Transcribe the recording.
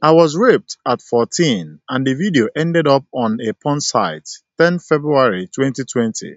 I was raped at 14 and the video ended up on a porn site 10 February 2020.